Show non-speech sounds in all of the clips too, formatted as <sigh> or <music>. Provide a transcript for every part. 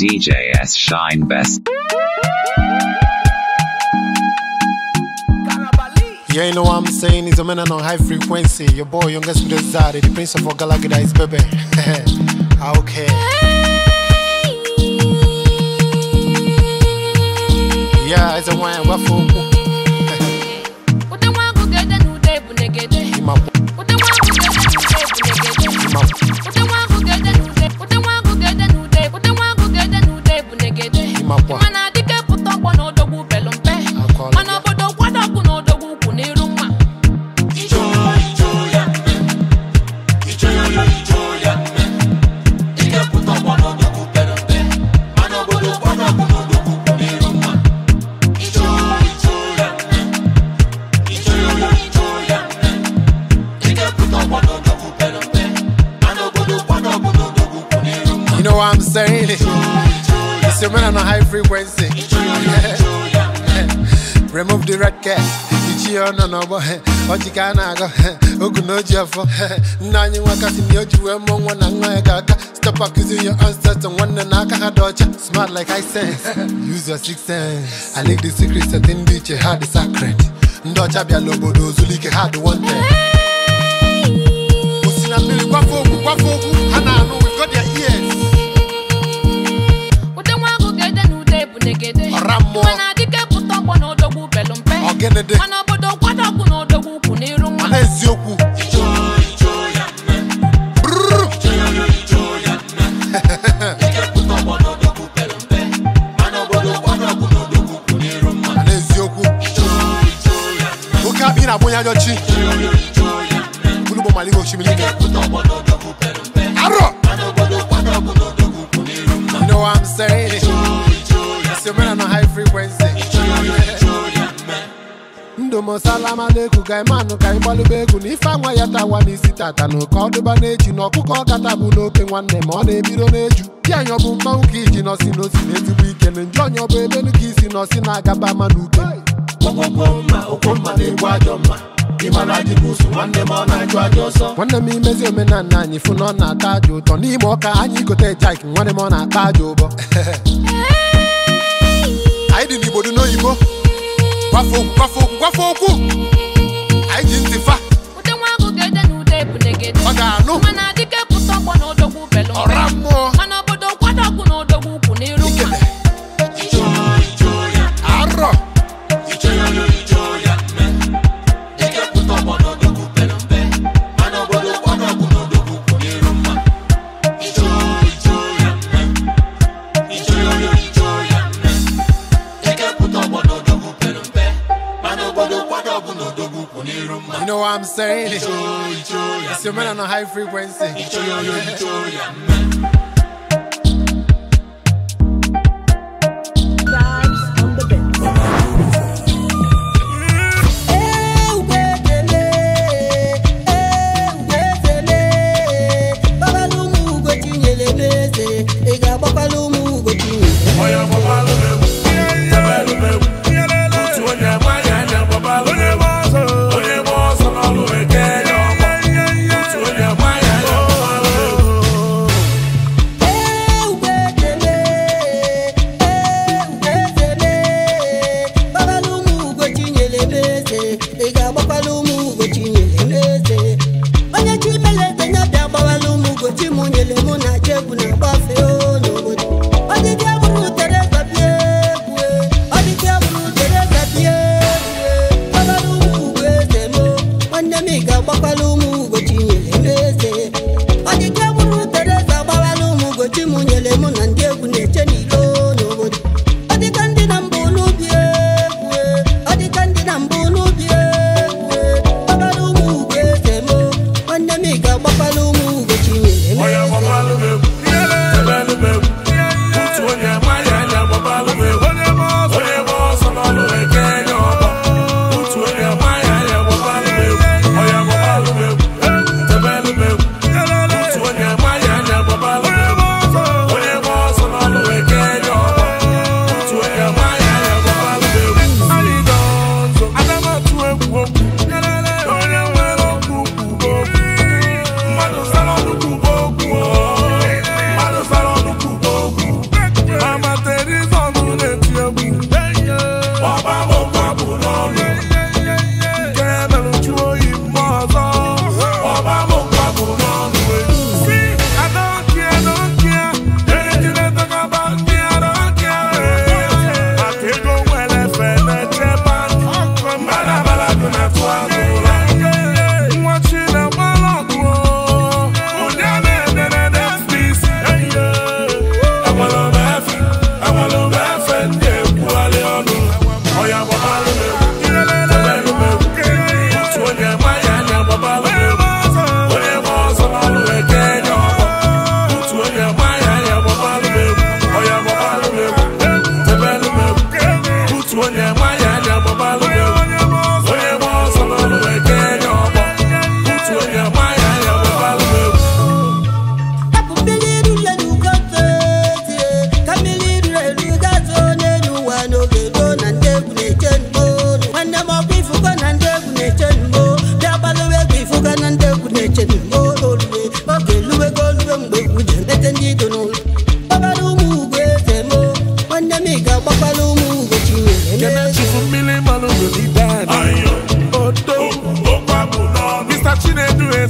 s shine best. Yeah, you know what I'm saying? It's a man on high frequency. Your boy, youngest with Zari, the prince of Galagida is baby. <laughs> Ah, okay. Yeah, it's a wine. What for? Ima. <laughs> Ima. know what I'm saying? It's your man on a high frequency. Remove the record. Ichi no bo oji ka na go ogu na ji afọ nna nwakasị na oji wee mụọ na nwa ya ga-aka stop accusing your ancestors nwanne na aka ha dị ọcha smart like I sense use your sense I like the secret sacred ọcha bịala obodo ozulike ha dị wanted na na ọra mmụọ mana adike pụta ọgbọ na odogwu belu mpe ọgịnịdị mana obodo na odogwu ukwu n'iru nwa eziokwu oke ya You know what I'm saying? mana na high frequency ndụ m salama na-eku ga imanụ ka anyị gbalịba egwu na ife anwa ya tawa n'isi tata na oke ọdụba na-eju na ọkụkọ ọkata bụ n'oke nwanne ma ọ na-ebido n'eju di anyị ọ bụ ka iji nọsi n'osi na ezigbo ike na nju onye ọbụ emenu ka isi nọsi na-agaba ama na uke nwanne m imezi omenala <laughs> anyị fụ na ọ na-ata aja ụtọ n'ime ọka anyị gote jaik nwanne m ọ na-ata aja ụbọ anyị dị n'Igbo gwafo n'oyibo gwafo okwu gwafe okwu gwafe okwu anyị ji ntị fa ọ ga-anụ ọra mmụọ man on a high frequency. ike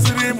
siri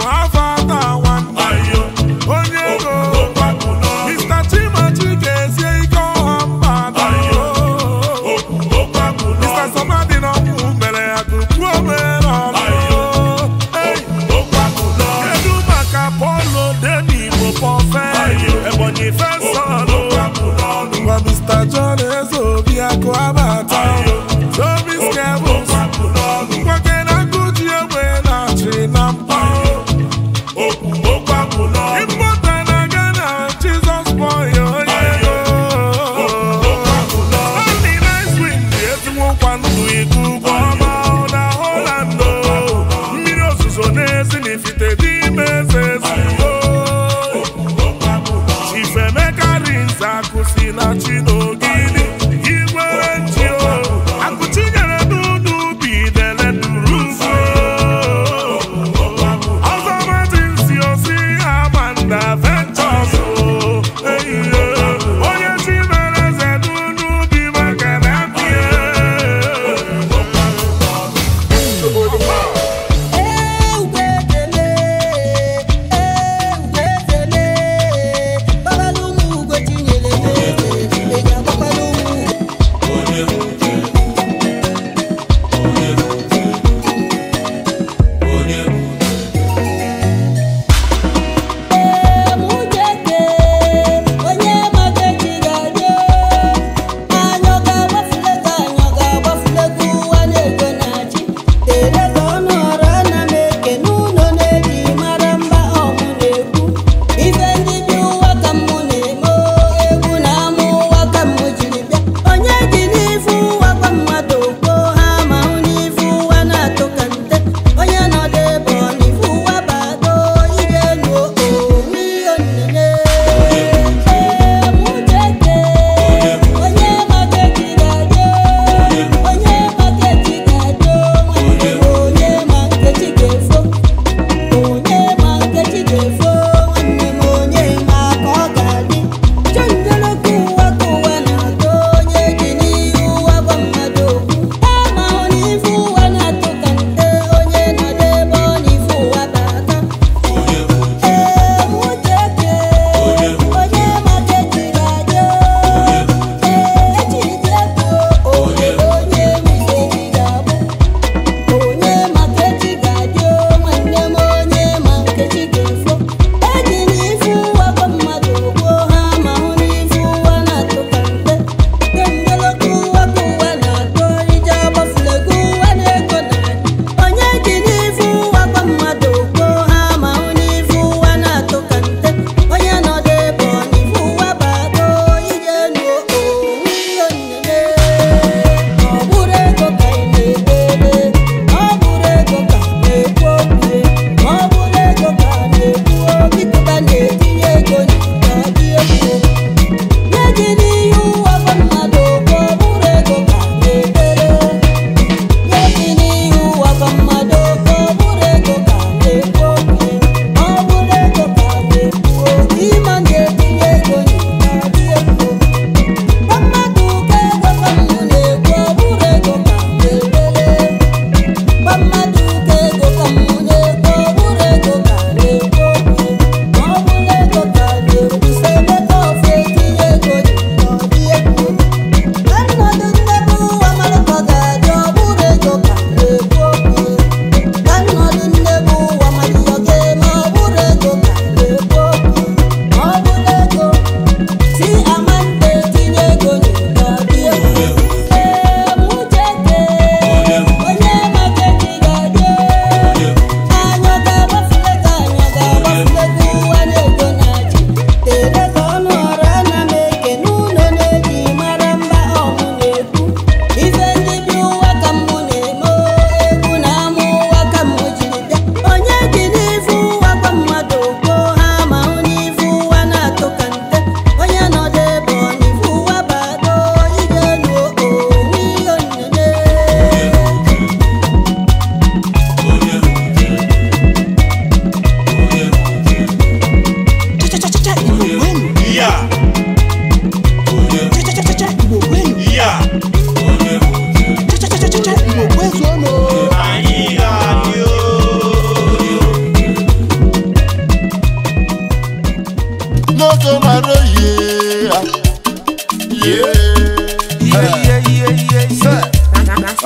n'oge mara oyi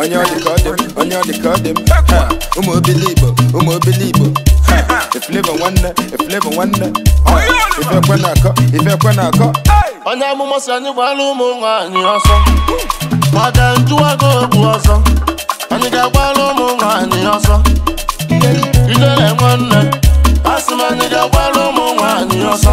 onye ọ ka ọ dị m onye ọ dị ka ọ dị m ụmụ obili igbo ụmụ obili igbo nwanne eflevọ nwanne na-akọ ifekwe na-akọ onye amụma si anyị gbara ụmụ nwaanyị ọsọ maka njụwago okwu ọsọ anyị ga-agbara ụmụ nwaanyị ọsọ ijele nwanne asị m anyị ga-agbara ụmụ ọsọ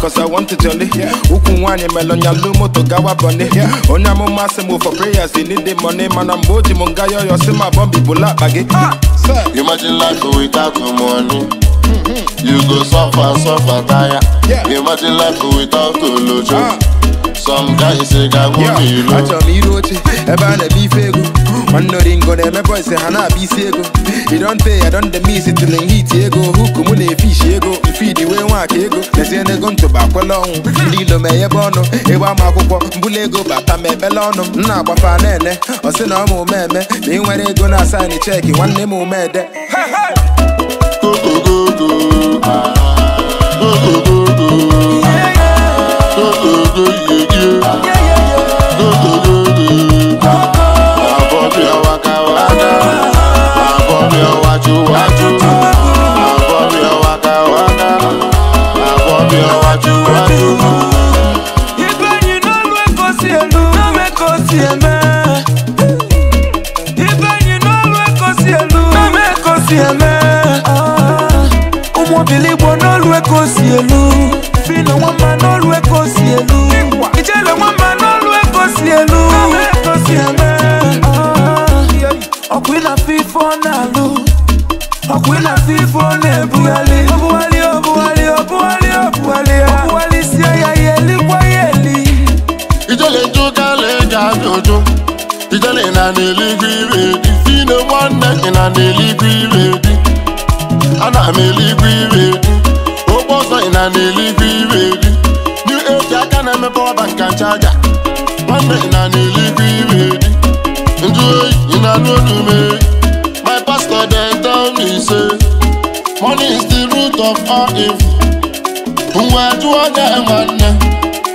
cause I want to jolly Ukwu nwaanyị melonya lu moto gawa bọni onye amụma sị move for prayers they need the money mana mgbe o ji m nga yoyo si ma bọmbi bụla akpa gị ah, Imagine life without money You go suffer, suffer, tire Imagine life without olojo ah. Some guys say ga nwome ilo Achọrọ m iru oche ebe a na-eme ife egwu nnoringo na-emebe ise ha na-abịa isi ego idonte ya don the miss till in heat ego huku mụ na-efishi ego mfidi wee nwaka ego lezie n'ego ntụba akwela ọnwụ ndị ilo ma ebe ọnụ ịgba ama akwụkwọ mbụla ego bata ma ebele ọnụ m na-agbafa na-ene ọsị na ọma omeme na ị nwere ego na asaịnị cheki nwanne m omede money my pastor dey tell me say money is the root of all evil mgbe jụọ na nwanne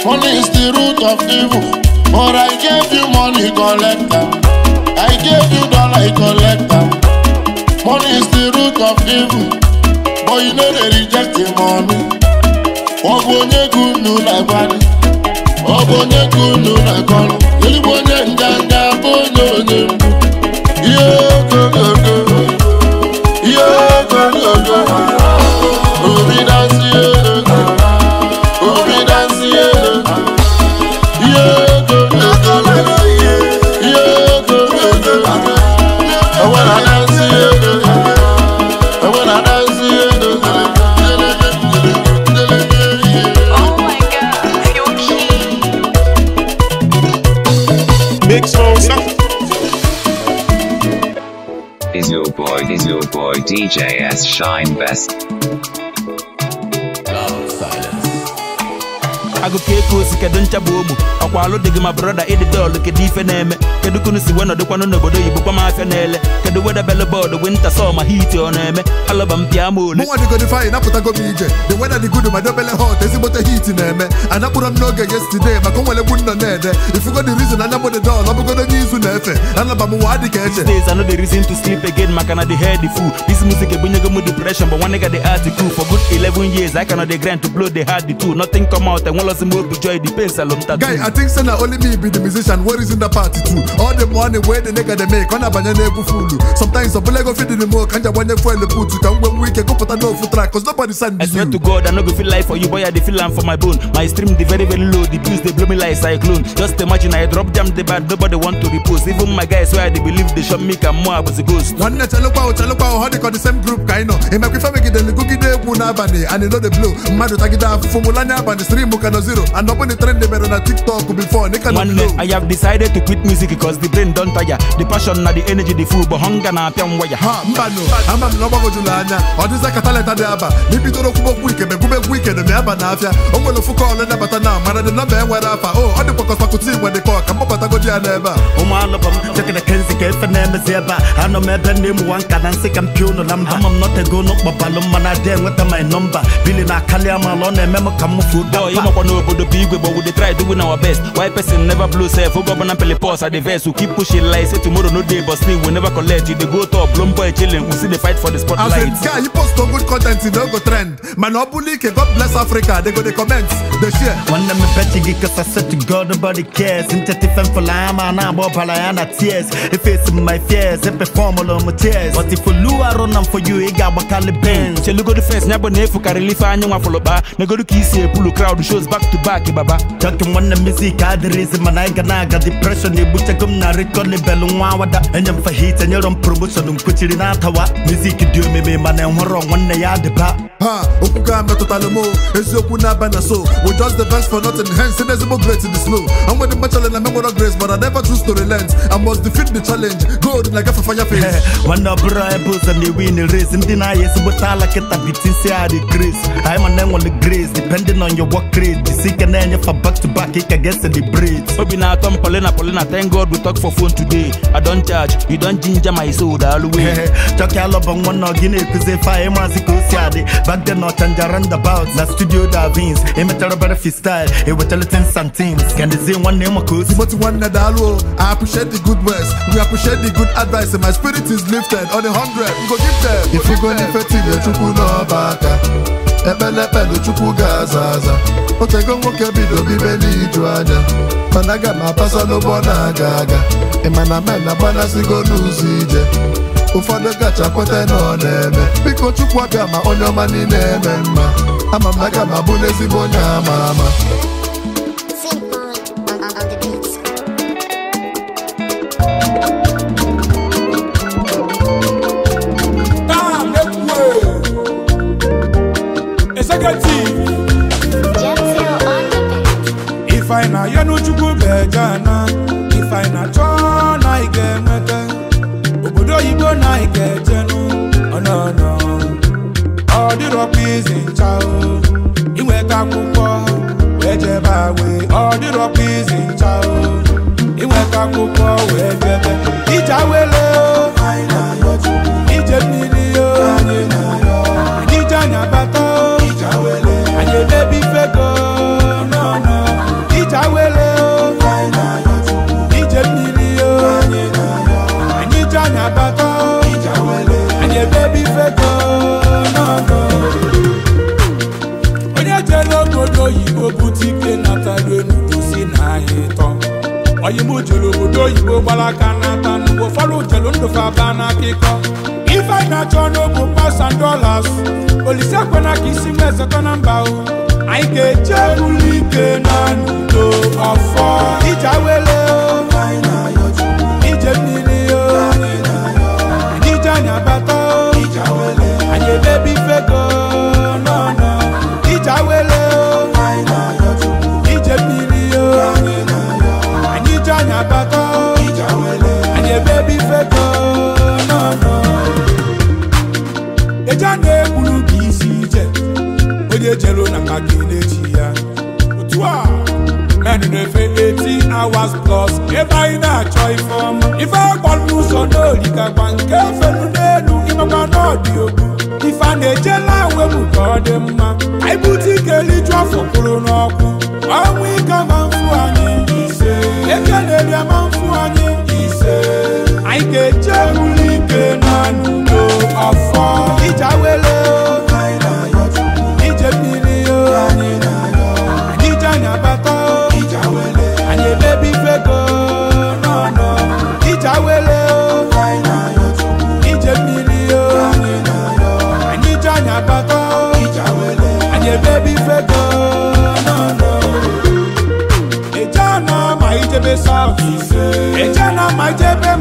money is the root of evil but i gave you money collect am i gave you dollar collect am money is the root of evil but you no dey reject the money ọ bụ onye gị unu na-agbalị ọ bụ onye gị unu na-akọrọ ezigbo onye nganga Is your boy, is your boy DJ Shine Best? Agụkọ ogbu ọkwa alụ ma brọda ịdị kedu ife na-eme kedu kunu si wee nọdụkwanụ n'obodo oyibo kwa na-ele weda wedebele bọọdụ winta sọma hiti ọ na-eme alọba m ma ole mụnwa dịgodịfe anyị napụtago m ije the weather dị good ma dobele hot ezigbote hiti na-eme anakpụrọ m n'oge yesterday maka onwere gbu nọ na-ede ifugo the reason anya alaba these days i the reason to sleep again maka na the head full this music e depression but ga the art cool for good 11 years I cannot dey grind to blow the heart two nothing come out all the money wey the nigga dey make ọ na-abanye n'egwu fulu sometimes ọbụla ego fit dị mo ka m ji agbanye fuel put ka m nwee nwee ike gụpụta n'ofu track cause nobody send I swear to God I no go feel life for you boy I dey feel am for my bone my stream dey very very low the bills dey blow me like cyclone just imagine I drop jam dey bad nobody want to repost even my guys wey I dey believe dey shop me ka mmụọ abụzi ghost nwanne chelụkwa o chelụkwa o ha dịkọ the same group ka anyị nọ imekwe femegidere gụgide egwu n'abalị and no dey blow mmadụ tagide afụfụ mụlanye abalị stream ka zero and ọ bụ na trend mere na tiktok before nịka na nwanne I have decided to quit music cause the brain don tire the passion na the energy the full but hunger na-apịa m waya mbanụ ama m na ọgbagojulu anya ọ dịza ka talenta dị aba na ibidoro kwubokwu ike megwumegwu ike na aba na afịa o nwere ofu kọọlụ nabata na mara dị nọmba enwere afa o oh, ọ dịkwakọsakụta igwe dị kọ ka mgbabatagoji ya n'ebe a ụmụ anụbọ m chekere kenzi ka efe na-emezi ebe a anọ m ebe na-emuwa nka na nsị ka m pịa ụlọ na mba ama m nọtego n'ụkpọbalụ mma na my nọmba bili na kali amala ọ na-eme m ka m mụfu ụda ọyị makwa n'obodo bụ igwe gbọwụ the try doing our best why person never blow self oge ọbụla mpelipọs adịve business we keep pushing like say tomorrow no day but still we never collect you dey go top blown boy chilling we still dey fight for the spotlight. as guy you post good content e no go trend mana ọ god bless africa go dey comment dey share. m to god nobody cares for ma na agba ọbara ya na tears efesi m my fears epefọm ụlọ but na m for you ga-agbakalị bens. chelugodi fes ya bụ ka crowd shows back to back baba. music mana anyị ga na-aga na m na nwa awada enye m fahit enyere m promoshọn mkpechiri na music mizik dị omeme mana enwere nwanne ya dịba ha tota eziokwu na so we just the best for nothing hence ezigbo grace the slow and the grace but I never choose to relent I must defeat the challenge fire face nwanne ọbụrụ ebe ụzọ ndị na ezigbota ala bitin si grace e na-enyefa back to back e obi na-atọ m thank we talk for phone today i don charge you don ginger my soul the whole way chọkị alọbọ nwa na ọgị na-ekuzi fa back then ọchanja roundabout na studio davins emechara bere freestyle ewetara ten santins kendezie nwanne ịma ka o si moti nwanne daalụ i appreciate the good words we appreciate the good advice my spirit is lifted on a hundred go give them ifugo n'ife tinyechukwu n'ọba aka ekpelepelu chukwu ga-aza aza otego nwoke bido bibe n'iju anya mana aga m apasa n'ụgbọ na-aga aga ịmana men agbanasigo n'ụzọ ije ụfọdụ gacha kweta na ọ na-eme biko chukwu abịa ma onye ọma niile eme mma ama m na aga m abụ n'ezigbo onye ama ama negative ife anyị na-ayọ n'Uchukwu bejana ife na obodo oyibo na anyị ga-ejenụ ọ dịrọ pịzị ncha gbara aka n'ata n'ugbo ụfọdụ jelu ndụ fa aba n'akụkọ ife anyị na-achọ n'ogbu pasan dolas olise ekwena ka isi m na mba o anyị ga-eje ike na n'udo ọfọ ije awele ma jebe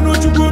n'uchukwu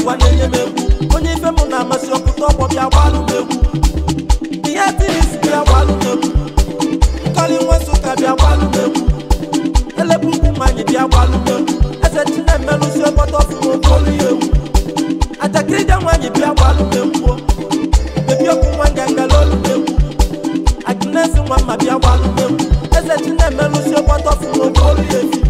ụwa na-enye m egwu onye ife m na-amasị ọkụta ọgbọ bịa gbalụ m egwu ihe tinis bịa gbalụ m egwu nkọli nwa nsụka bịa gbalụ m egwu elepu ukwu mmanya bịa gbalụ m egwu eze chinemelụsi ọkpọta ọfụma okolu ya egwu nwaanyị bịa gbalụ m egwu okwu nwa m egwu nwa mma bịa gbalụ m egwu eze ọkpọta ọfụma okolu ya egwu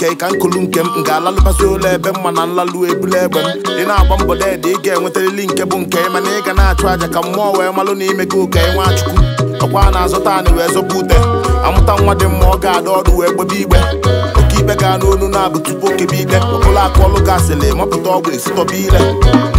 nke ka nkulu nke m m ga-alalụbazi ụlọ ebe mma na nlalụ ebula egbe m ị na-agba mbọ deede ị ga-enwetarịrị nke bụ nke mana ị ga na-achụ aja ka mmụọ wee malụ na ime gị ụka nwachukwu ọkwa a na-azụta anị wee zọba ute amụta nwa dị mma ọ ga-ada ọdụ wee gbebe igbe oke ibe gaa n'olu na-abụ tupu okebe ikpe ọbụla akụ ọlụ gasịlị mapụta ọgwụ esitọba ile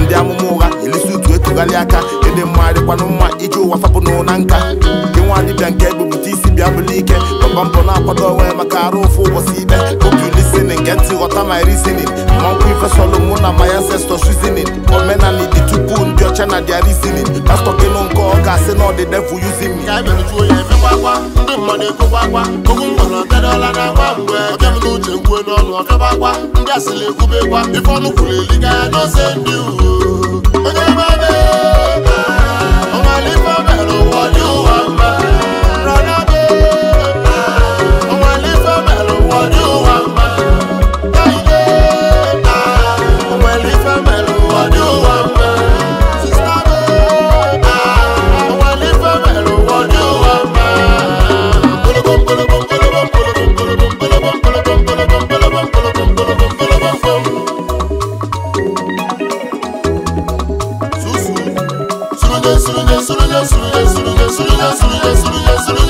ndị amụma ụgha elisi utu etugharị aka nke dị mma mma iji ụwa fapụnụ na nka gị nwa dibịa nke ebupụta isi bịa bụlụ ike papa mpọ na-akwado onwe maka arụ ụfụ ụbọchị ibe obi lisinin nke ntị ghọta my reasoning mmanwụ ifesolu mụ na my ancestor reasoning omenala dị tupu ndị ọcha na dia reasoning pastọ nke ọ asị na ndị mmadụ ekwubekwa ọnụ kwuru n'ose ndị onye